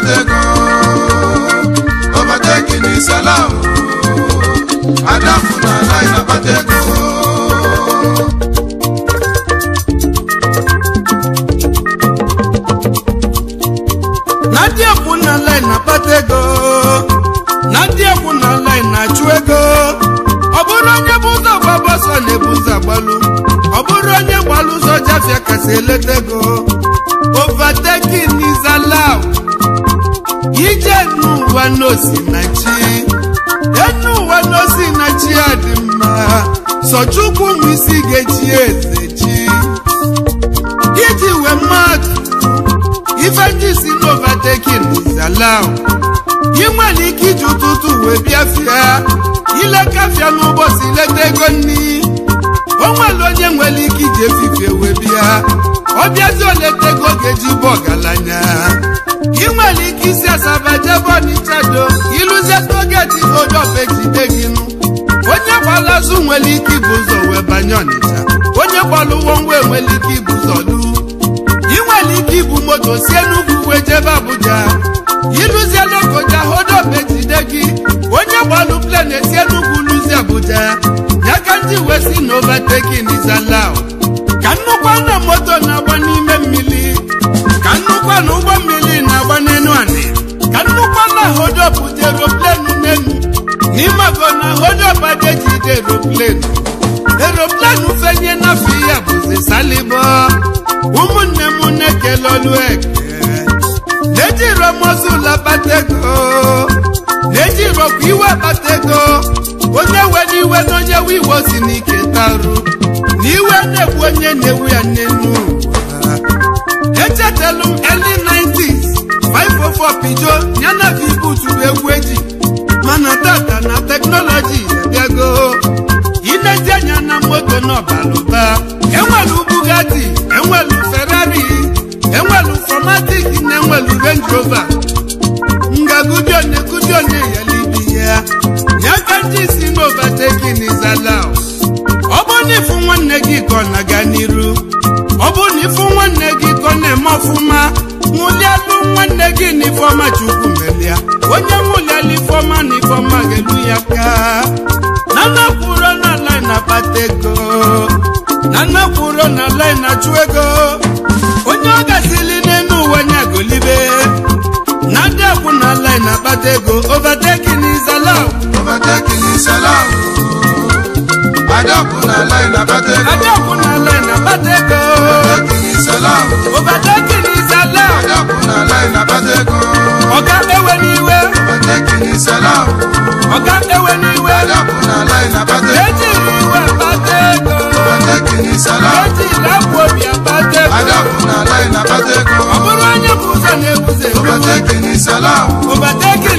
Adego overtake ni salam Adafu na line Abadego ndị na line akpata na na achụ ego ọ bụrụ onye bụ ụzọ gbaba na-ebu ụzọ ọ bụrụ onye gbalụ ele n'ụwa na chi enu na chi a dị mma sọchukwu ụmụ ga eze chi iji wee mad ifeji si n'ovatekin zalam ị nwere ike iji ụtụtụ wee bịafịa ilekafịa n'ụbọchị ileta ego nri o nwere onye nwere ike iji efifie wee bịa ọ bịazi ego ga-eji bụ i nwere ike isi asaba jebe ọnịchado ịlụzie togeti onye ọba ejide gị nụ onye gbara azụ nwere ike ibu ụzọ wee banye ọnịcha onye gbara ụgwọ ngwa enwere ike ibu ụzọ lu ị nwere ike ibu moto sie n'ugwu wee jebe abuja ịlụzie lokoja onye ọba gị onye gbalụ plen esie n'ugwu lụzie abuja ya ka ndị wee si na nizala is ka nnukwu anya moto na-agba n'ime mmiri ka nnukwu na ụgbọ mmiri na-agba n'elu anị ka nnukwu na hojọpụta eroplenu n'elu n'ime ọgọ na hojọpa ga-ejide eroplenu eroplenu fenye n'afọ ya bụzi salibo ụmụnne m na-ekele olu eke ejiro mozula na ego ejirokwa iwe bata ego onye nwe iwe na onye wiwo si n'ike tarụ na iwe na-egbu onye na-ewu ya n'enu. echetelu m early 90s pijọ, pijo yana ibu juru egwu eji mana tata na teknọlọji abịago ilezi anya na moto n'ọbalụta enwelu Bugatti enwelu Ferrari enwelu Formatic na enwelu Range Rover ngagudione gudione yelibi ya yakanji si n'ovatekin izalaụ ọ bụ onye ịfụ nwanne gị ka ọ na-aga n'iru ọ nne m ọfụma mụlielu nwanne gị na ifeọma chukwu melia onye mụlielu ifeọma na ifeọma ga-elu ya ka na nnakwuro na lai na-akpata ego na na ala na-achụ ego onye ọ gasịli n'elu ụwa nya golibe na ndị akwụ na ala na-akpata ego overtaking is allowed overtaking is allowed adakwụ na lai na-akpata ego ọga ewe n'iwe ọga ewe n'iwe iwe na-ebuze onye bụ ewe n'iwe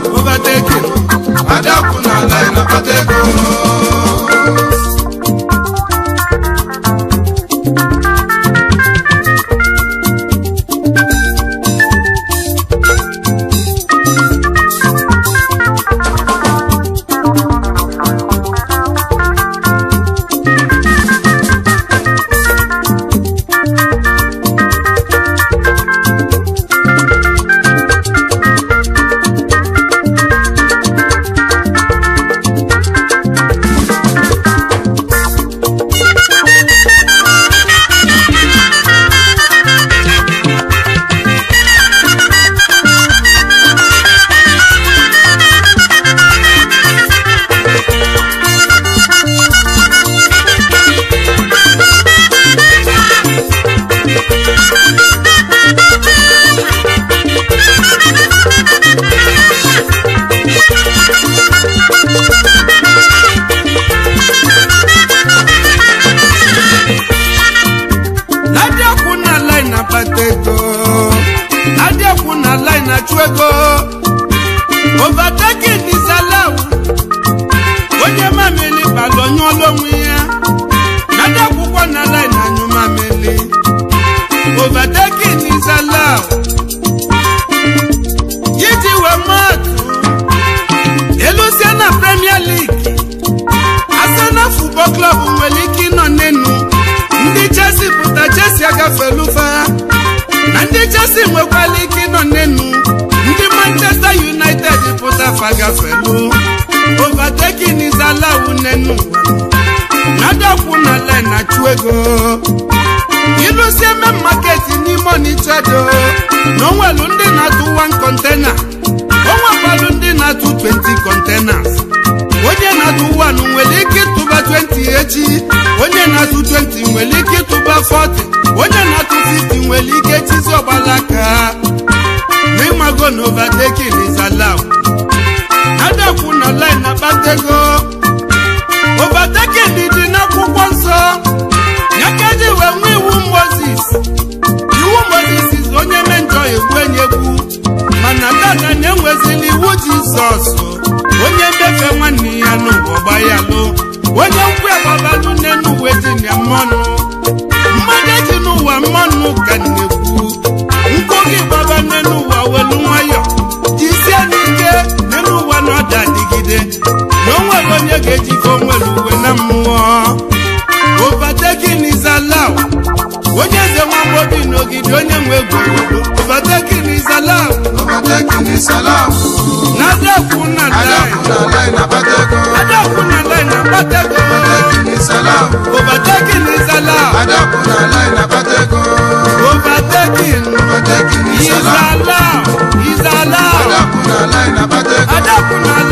overtaking adakwụ na ala na-akpata ego afa gafelu overtaking is allowed nenu nadakwu na line na-achụ ego ịlụsi eme market n'ime onichedo na atụ 1 kontena onwekwalụ ndị na 20 containers onye na-atụ 1 nwere ike ịtụba 20 echi onye na-atụ 20 nwere ike ịtụba 40 onye na-atụ 50 nwere ike chizi ọgbalaka aka n'ịmago na overtaking zala online na dị n'akwụkwọ nsọ ya ka eji wee nwee iwu Mozis iwu Mozis onye me njọ egwu enyi egwu mana tata na-enwezili iwu ji Jizọs onye ndefe nwanne ya n'ụwa gbayalụ onye nkwu agbabalụ n'enuwe dị na e mmanụ mmadụ eji n'ụwa mmanụ ka na-ekwu nkụ gị gbaba n'elu ụwa welu nwayọ ide na onwere onye ga-ejikọ onwere uwe na mmụọ obatekinizalaw onye eze nwagbodi n'ogidi onye nwe egwu obatekinizalaw na adakwu na lai na batego obatekinizalaw obatekin izalaw izalaw adakwu na lai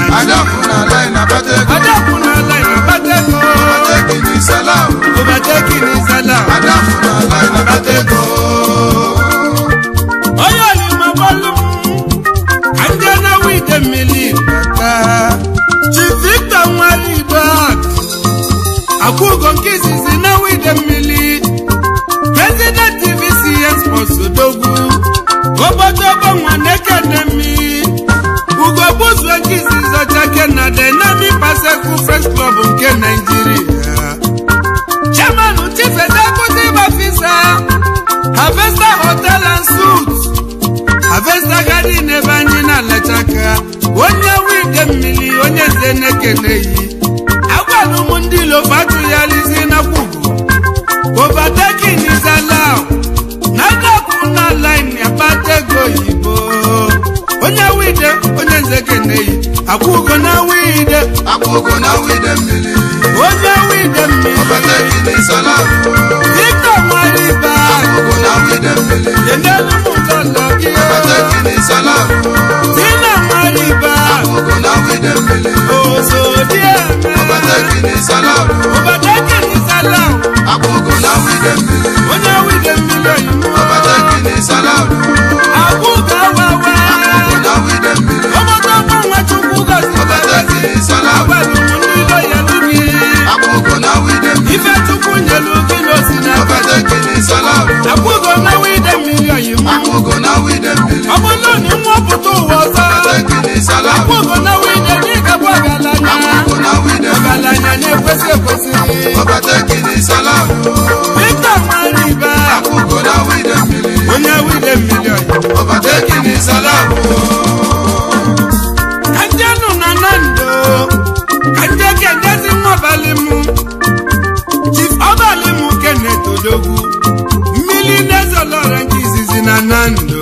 Adákùn àlẹ́ ìnàbátẹ́gùn. Adákùn àlẹ́ ìnàbátẹ́gùn. Ọbàtẹ́kì ní sẹ́lá. Ọbàtẹ́kì ní sẹ́lá. Adákùn àlẹ́ ìnàbátẹ́gùn. Eke na Dynamic Pasekwu Fresh Club nke Naịjirịa Chairman Chief Executive Officer Harvester Hotel and suit Harvester Garden ebe anyị na-alachaka onye wide mmiri onye eze na-ekeneyi agwalụ m ndị Ilofa atụghalizi na kwugo overtaking is akwụgo na wide akwụgo na wide mmiri onye wide mmiri ọbata gidi sala dịka nwanyị ba akwụgo na wide mmiri enelu m ụlọ gị ọbata gidi sala dịna nwanyị ba akwụgo na wide mmiri ozo dị eme ọbata gidi sala ọbata gidi sala akwụgo na wide mmiri onye wide mmiri ọbata gidi sala akwụgo Ìṣọ̀lá pẹ̀lú nílò yẹlú kí. Àkókò náà wí dé mi. Ìfẹ́ tukùn yẹlú kí ló sì dá. Ọbẹ̀ tó kì ní Ìṣọ̀lá o. Àkókò náà wí dé mi yọ yìí mú. Àkókò náà wí dé mi. Ọmọ náà ní wọ́n bù tó wọ sọ. Ọbẹ̀ tó kì ní Ìṣọ̀lá o. Àkókò náà wí dé ní ìkàbọ̀ ọ̀gàlànà. Àkókò náà wí dé Fernando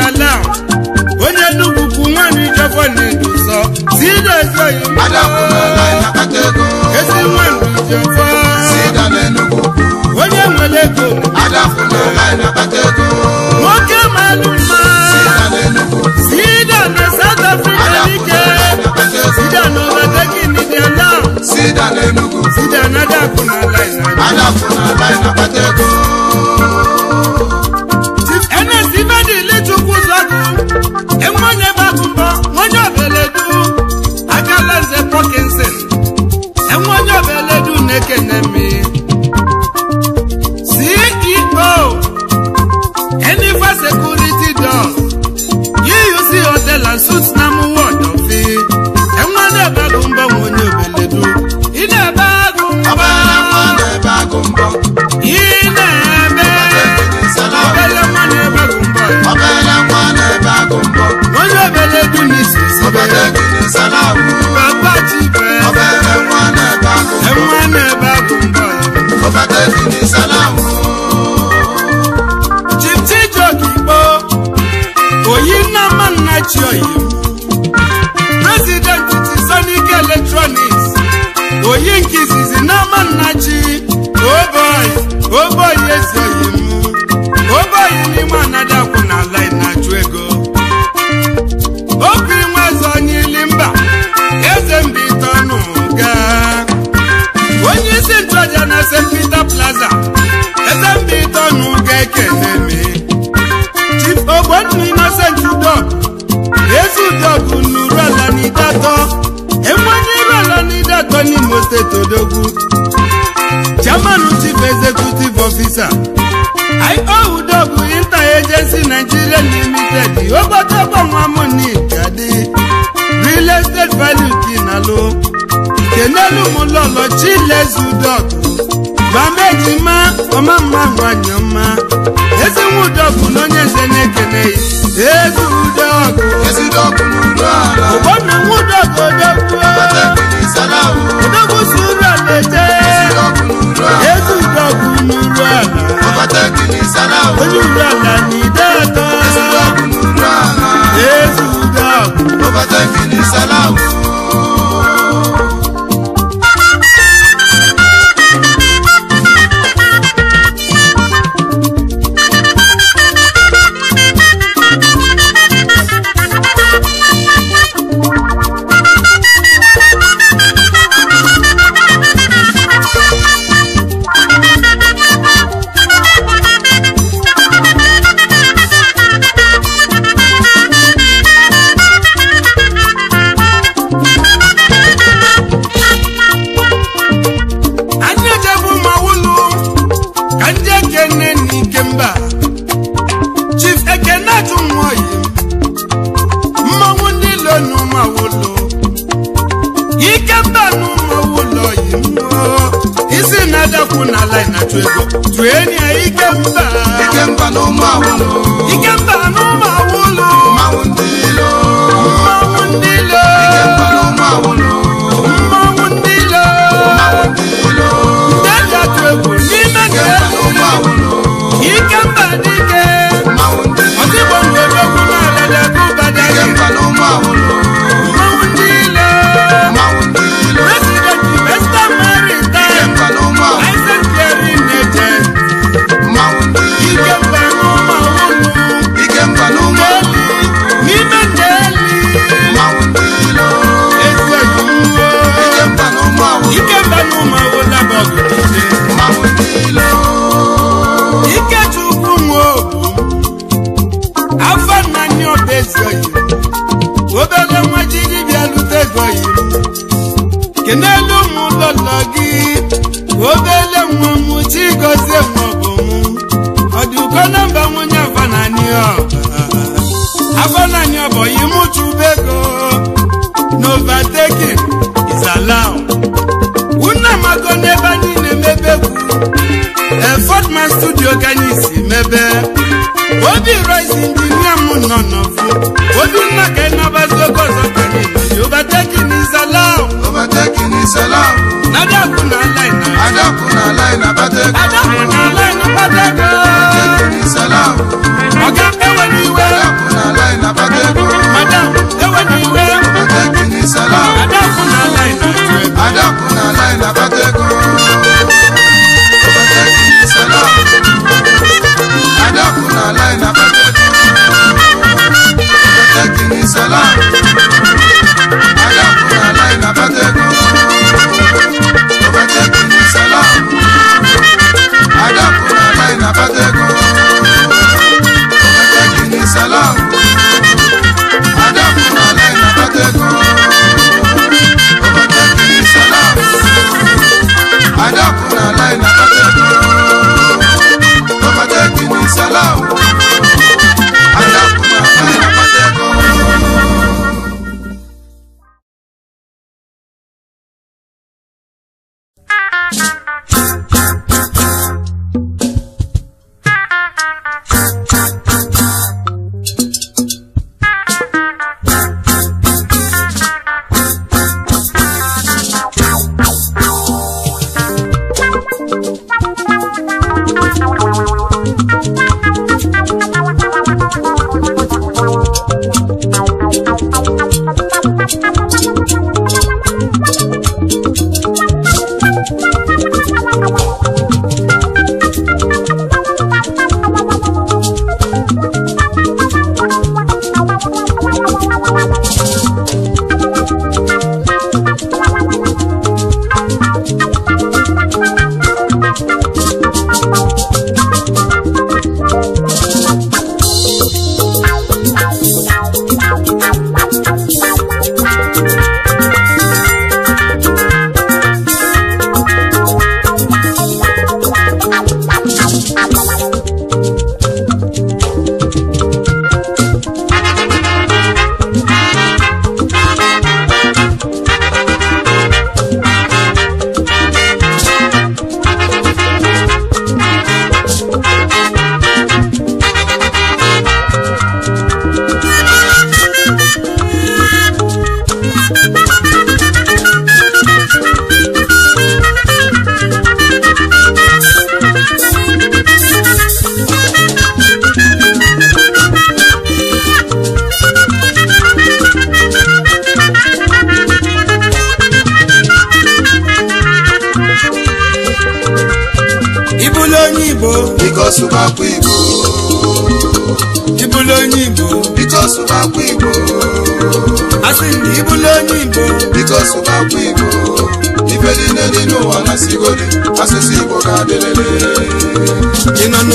salam onye nnukwu nwanyị jọbọ na-eduzọ sidozoyi ezi nwaanyị jọbọ onye nwere ego nwoke malụ mma sida na South Africa dike sida na ọbadagi nidiala sida na adakụ na ala mu lọlọ chilezu dọk gba meji ma ọma mma nwanyị ọma ezinwu dọkụ na onye nze na-ekene ezu dọkụ ụgbọna nwu dọkụ odogwu odogwu si uru ala eje ezu dọkụ n'uru ala onye uru ala na ide atọ ezu dọkụ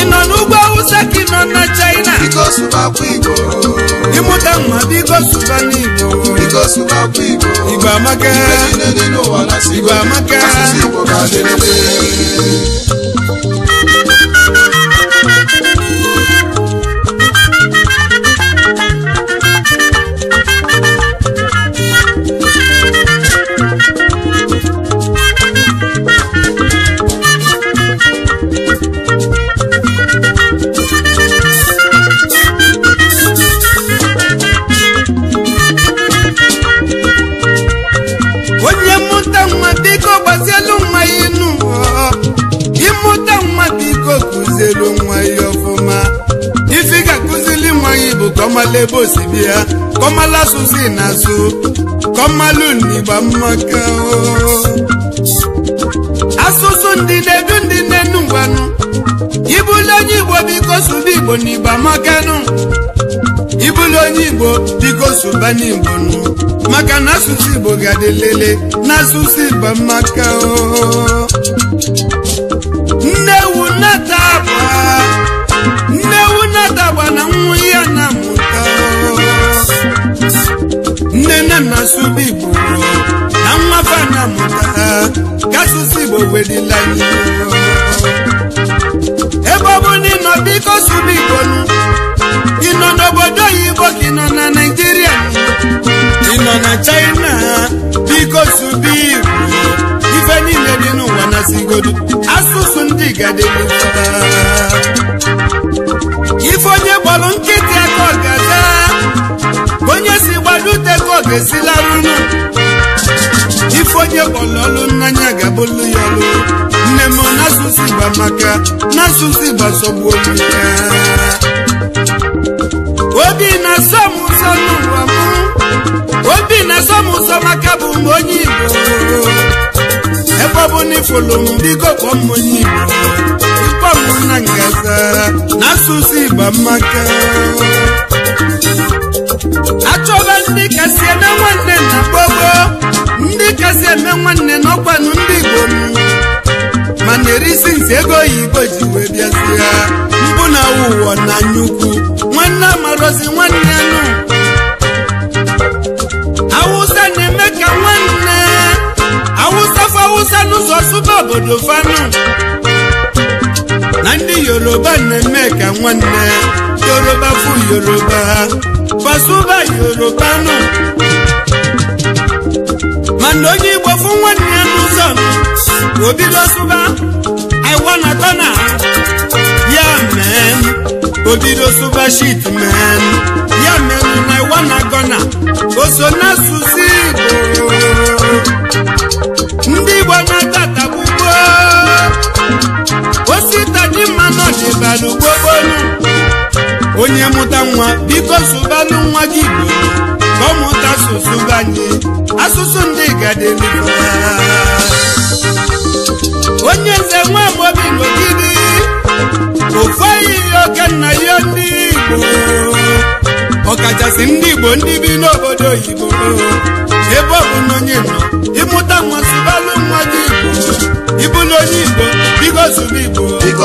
ị nọ n'ugwu awụsa ka ịnọ na China ịmụta mma biko sụba n'Igbo Igbo amaka Igbo amaka asụsụ na asụ kọmmalụ n'igba mmaka oh. asụsụ ndị na-edu ndị na ngwanụ ibulu onye igbo biko sụba igbo n'igba makanụ ibulu onye igbo biko sụba n'igbo nụ maka na asụsụ igbo ga-adị lele na asụsụ igba mmaka oh. asụsụ Igbo na nwafe na-amụta ka Igbo wedila ebe ọ bụ na ịnọ biko sụrụ Igbo ị nọ n'obodo oyibo ka ị nọ na naijiria ị nọ na China biko sụrụ Igbo ife niile dị n'ụwa na sigodo asụsụ ndị gadịife onye gbalụ nkịta esilarunu ife onye kpọlọlụ n'anya ga-abụlụ ya ọlụ nne m n'asụsụ igba maka n'asụsụ gba sọgbu olu ya obi na-asọ m ụzọ n'ụwa m obi na-asọ m ụzọ maka bụ m onye igbo ebe ọ na m m onye igbo abụ na ngata n'asụsụ igba mmaka achọba ndị kasị eme nwanne na gbogbo ndị kasị eme nwanne n'ọkwanụ ndị igbom mana erisi nsi ego oyibo ji wee bịazie mbụ na ụwa na nyukwu nwanne amarozi nwanne nụ awụsa na-eme ka nwanne awụsa fa awụsa n'ụzọ sụba obodo fanụ na ndị yoruba na-eme ka nwanne yoruba fu yoruba fasuba yoruba nụ mana onye igbo fu nwanne ya n'ụzọ obido sụba iwanatana ya mee obido sụba shit mee ya mere na iwanagona o so n'asụsụ igbo ndị igbo na-ata ọgaranya n'ugbobolu onye mụta nwa biko sụbanụ nwa gị igbo ka ọ mụta asụsụ banye asụsụ ndị gadelu onye nze nwa amobi n'ogidi ofeghị oke nna ya ndị igbo ọkachasị ndị igbo ndị bi n'obodo oyibo ebe ọ bụ na nọ ịmụta nwa sụbalụ nwa gị igbo ịbụlụ onye igbo biko igbo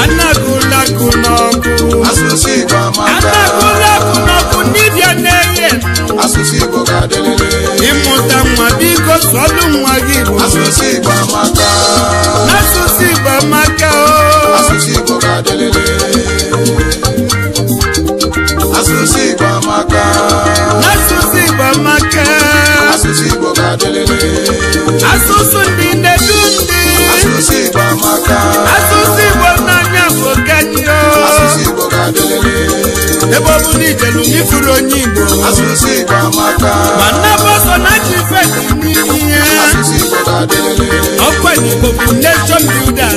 Anagụlakụ n'ọkụ asụsụ Igbo dibịa na-enye asụsụ Igbo ịmụta nwa biko sọlụ nwa gị Igbo asụsụ Igbo amaka asụsụ Igbo amaka asụsụ Igbo ga-adịlịlị asụsụ Igbo amaka asụsụ Igbo amaka asụsụ Igbo ga-adịlịlị n'ijelu ijelu onye Igbo ma nnabụ ọsọ na ji n'ihi ihe ọkwa Igbo bụ nation builder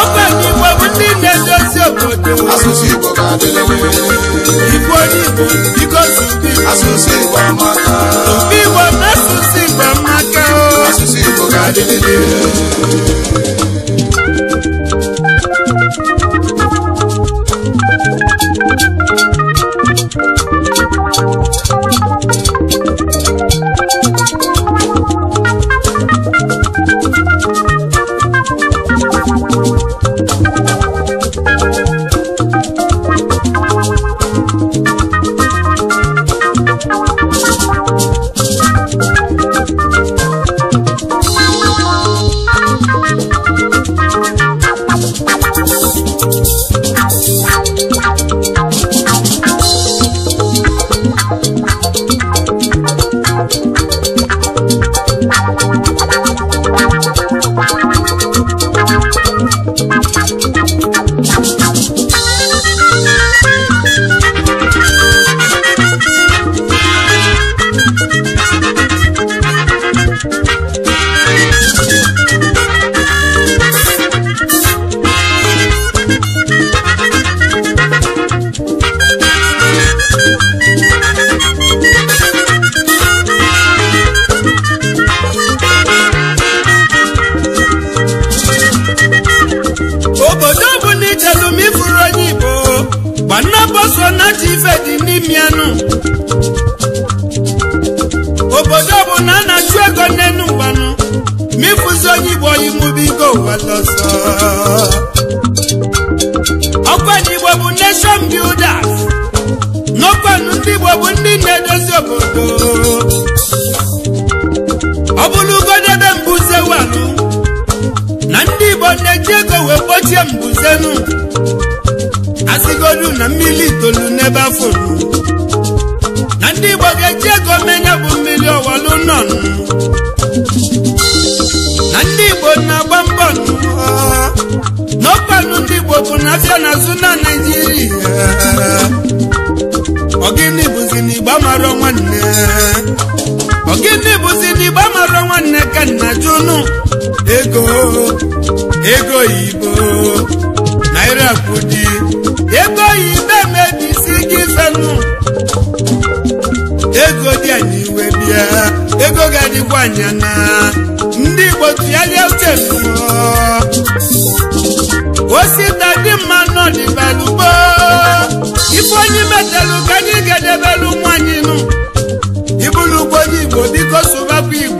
ọkwa Igbo bụ ndị na-edozi obodo Igbo onye Igbo biko Igbo na asụsụ Igbo amaka o igbo mara nwanne ka nna ego ego oyibo naira kwudi ego oyibo emebisi gị fenụ ego dị anyị iwe bịa ego ga-adịkwa anya na ndị igbo tụgharịa uche osita dị mma nọdịbalugbo ife onye metelu ka anyị ga-edebelu nụ ibụlụ ugbo onye igbo biko sụbakwa igbo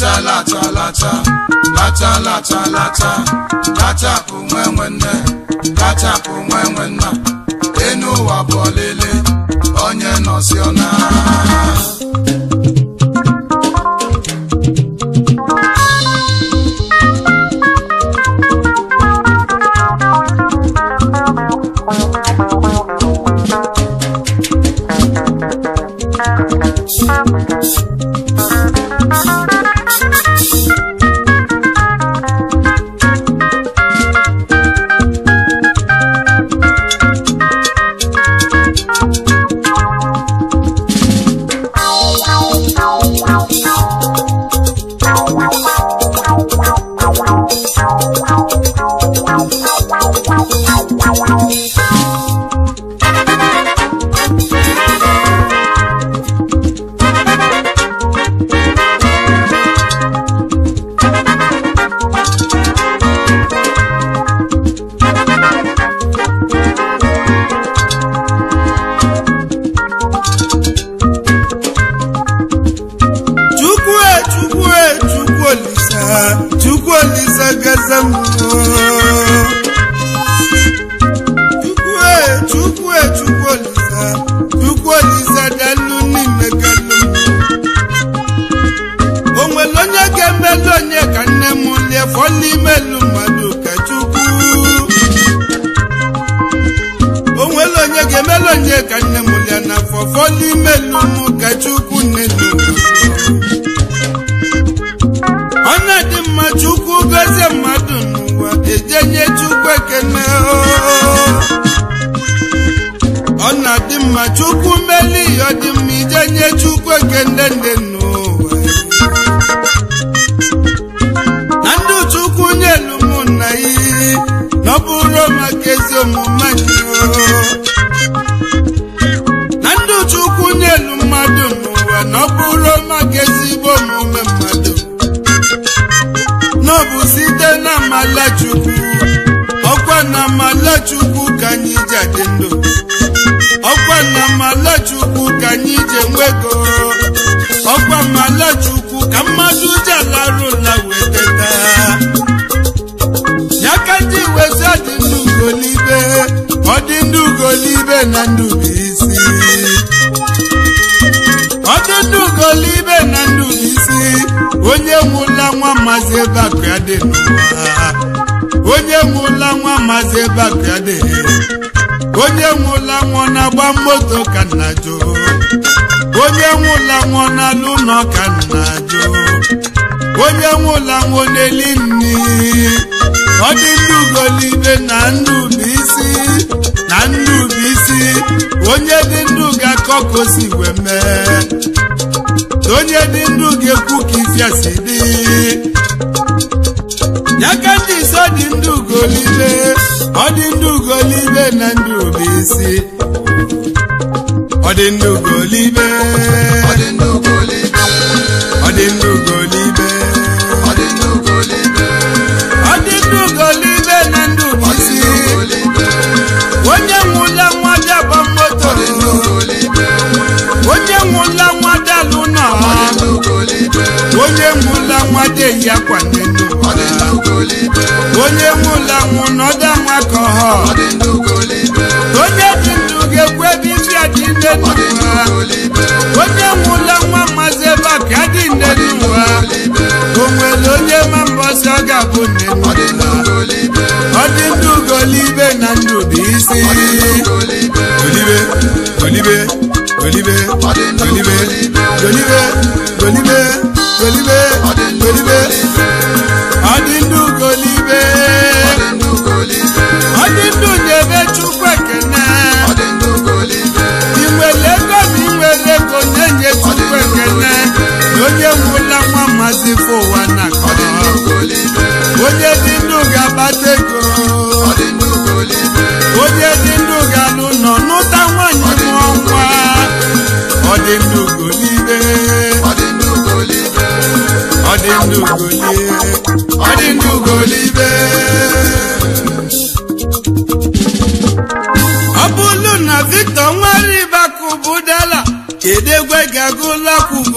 lata lata lata lata lata lata latapụ nwe nwanne latapụ nwe nwanna enu ụwa bụ ọlele onye nọsi chukwu mmeli ọdịmma ije nye chukwu nke ndende nnu onye nwụla nwa maazị ebe ya dị onye nwụla nwa na-agba moto ka nna jụ onye nwụla nwa na-alụ nọ ka nna jụ onye nwụla nwa na-eli nri ọ dị ndị ugolibe na ndị isi na ndị isi onye dị ndụ ga akọkọ si wee mee onye dị ndụ ga-ekwu ka ifiasi dị Ọ dị ndị ugolibe ọ dị na ndụ obisi ọ dị ọ dị ndị ugolibe ọ dị ọ dị ndị ugolibe onye nwụla nwa bịa gba akwa onye nwụla ụlọ nwụ n'ọda nwa onye dị ndụ ga ekwebi ebe isi adị nne n'ụwa onye nwụla nwa mmazi ebe a ka nne o nwere onye ma mbọsị ọ ga-abụ nne ọ dị ndụ golibe na ndụ bụ isi welibe welibe welibe welibe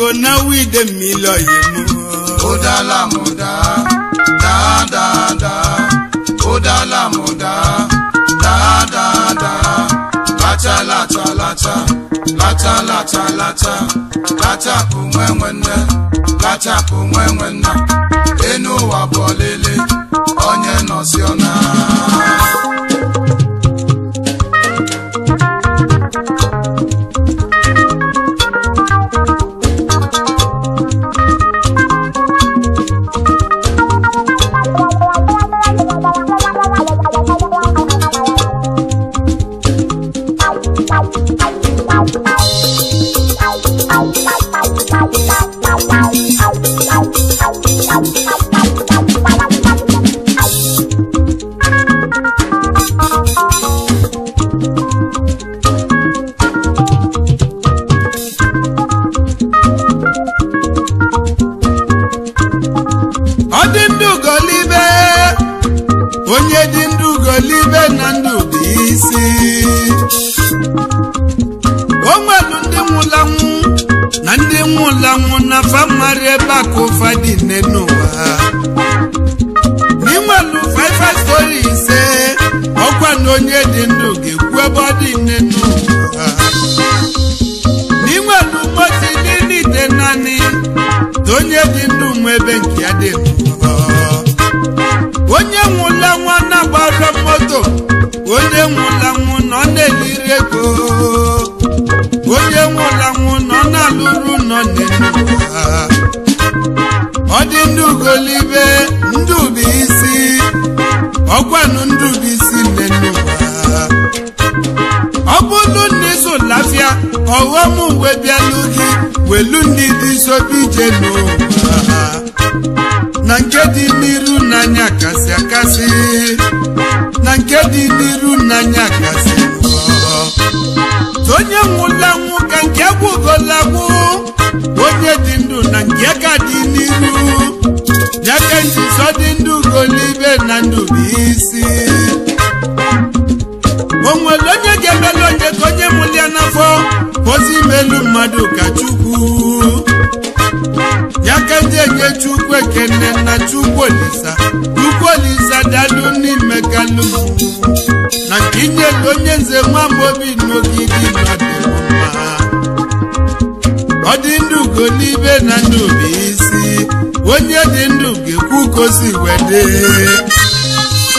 o náwó ìdè mi lọ yìí daa ó dá lámúdá dáadáa ó dá lámúdá dáadáa látàlátàlátà látàlátàlátà látàkùnwẹ́wẹ́ ná látàkùnwẹ́wẹ́ ná. isi o onye ga-emelu onye ka onye mụlia n'afọ pozi imelu mmadụ ka chukwu ya ka ndị enye chukwu ekene na chukwu olisa chukwu olisa dalu n'ime kalu na nke inyelu onye nze nwa amaobi n'ogige mmadụ mma ọ dị ndụ ugo n'ibe na ndụ bụ isi onye dị ndụ ga-ekwu kosi o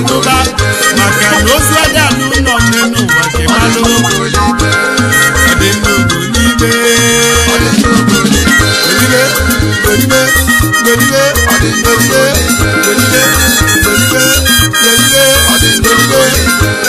ndụba maka na ozu ada n'ụlọ nne n'ụwa kemalụ dị nnukwu n'ime golibe golibe golibe